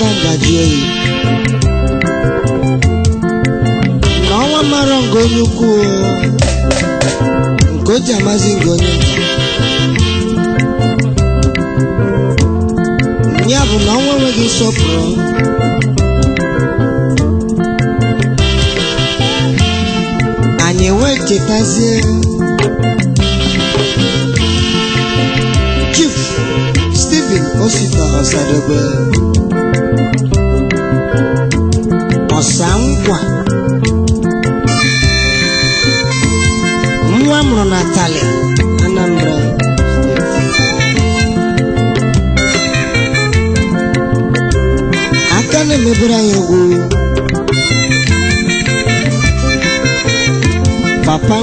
Changajie. N'ọnwa mara ngo onye ukwu nke o ji amazi ngo onye nta ya bụ na ọnwa enweghị nsọpụrụ anyị wee chetazie Chief Stephen Osita Osadebe Ọsankwa nwa mụrụ na Tali, Anambra aka na-emebere anyị papa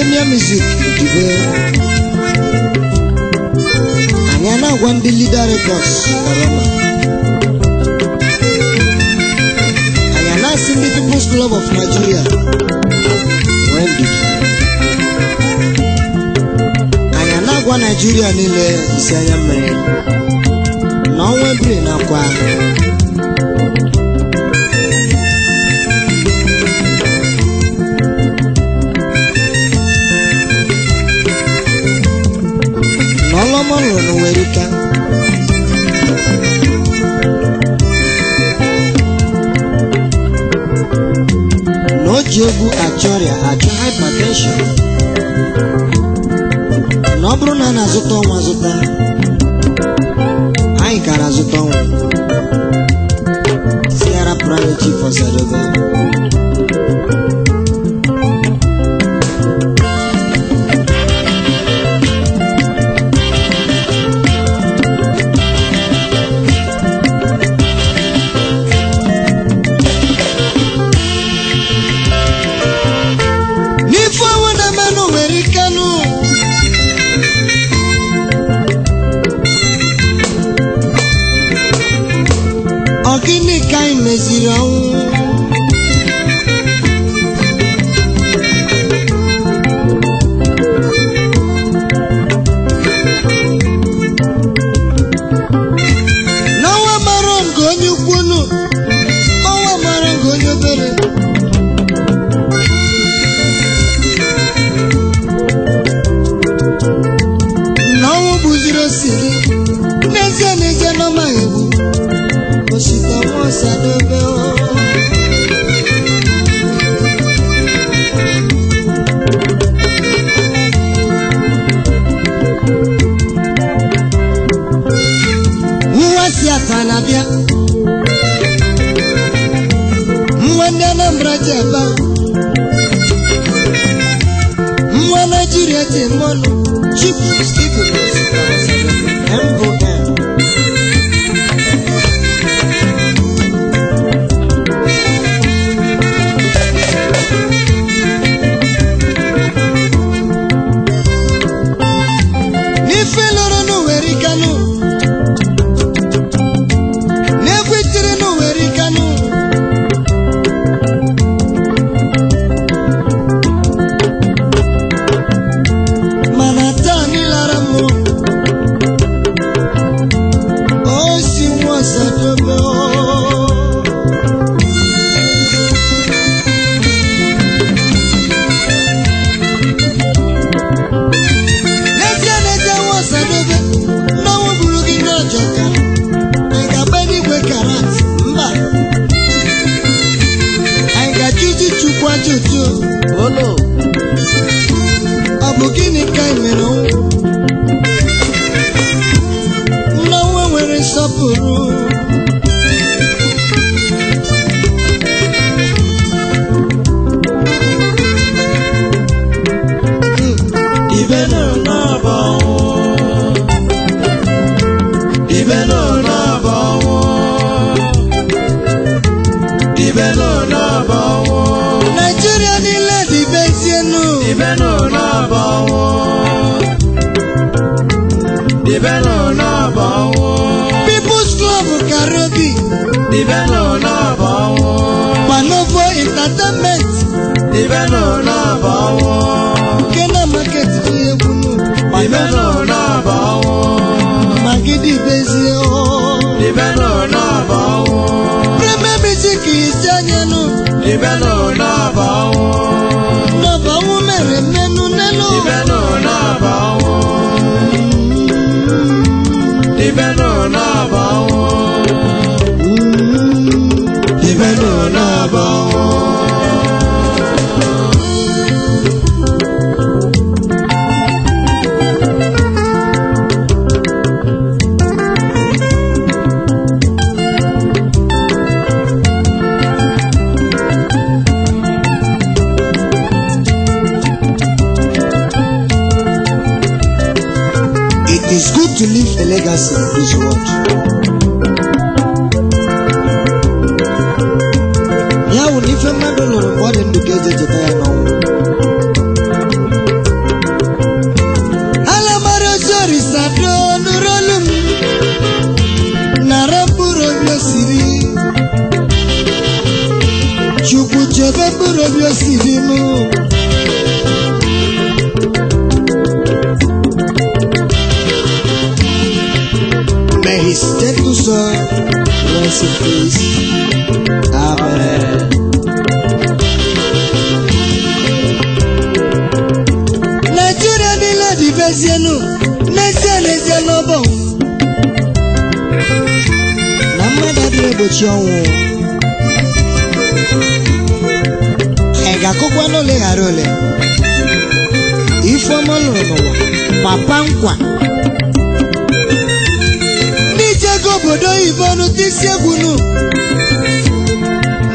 Premier music today. Anyana Wambi Leader Records, Barama. Anyana Simbi People's Club of Nigeria, Wambi. Anyana Gwa Nigeria Nile, Isaya Mre. Na Wambi na kwa. ọmọnụ n'Owerika na o ji egwu achọ ọrịa achọ hypertension na ọ bụrụ na a na-azụta ọnwa azụta Se era pra ọnwa te private chief afanabịa nwa ndị Anambra ji ebe nwa Naịjirịa ji mmanụ chipu sọpụrụ ibe nọ n'aba ọnwụ ibe nọ n'aba ọnwụ ibe nọ n'aba ọnwụ Naịjirịa niile dị be nsienu Ibẹ̀ ló lọ́bọ̀ wọn. Pàlọ́fọ̀ ìtàtẹ́mẹ́. a legacy in the world. Yàwó ní fẹ́ má dọ̀nà wọ́n ní dùkẹ́ jẹjẹ táyà náà wò. Alamaro sori sado nurolum, nara buro biosiri. Chukwu chebe buro biosiri mu. Nigeria dị la divezienu n'ezie n'ezie n'ọbọ na mmadụ adịghị egbochi ọnwụ ị ga-akụkwa n'ole ghara ole ifeọma lụrụ n'ụwa papa nkwa bọnu tisi egwu nu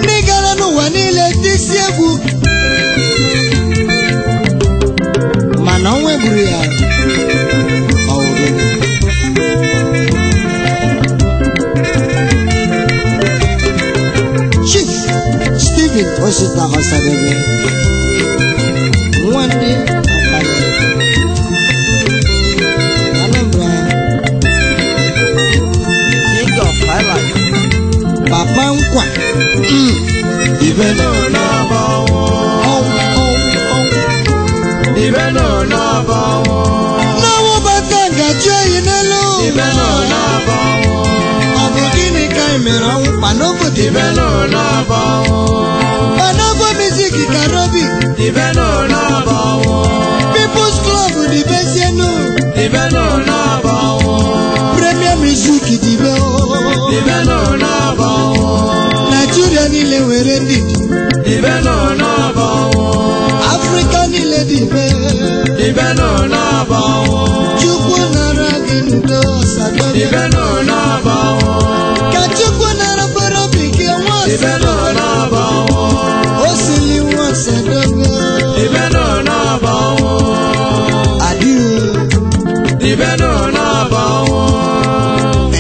ndị gara n'ụwa niile tisi egwu mana ọnwa egburu ya Chief Stephen Osita Osadebe one. Mm. Even on number one. Oh, oh, oh. Even on number one. Now over Ganga Jay in alone. Even on number one. Of the Guinea Chimera, Panovo Even on number one. Panovo Music Karobi. Even on number one. People's Club, the best you know. Even on number one. Premier Music, the best. Even on number one wèrè dìdì. ìbẹ́ náà náà bọ̀ wọ́n. African lady fẹ́. ìbẹ́ náà náà bọ̀ wọ́n. Chukwu nara gị ndo sago. ìbẹ́ náà náà bọ̀ wọ́n. ka Chukwu nara fọrọ bekee nwa ọsọ. ìbẹ́ náà náà bọ̀ wọ́n. o sili nwa ọsọ dogo. ìbẹ́ náà náà bọ̀ wọ́n. adiwo. ìbẹ́ náà náà bọ̀ wọ́n.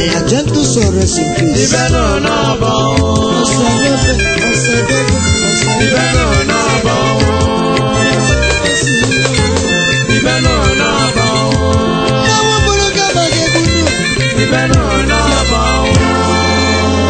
ẹ̀yà jẹ́ sọ̀rọ̀ sí. ìbẹ́ náà náà bọ̀ wọ́n.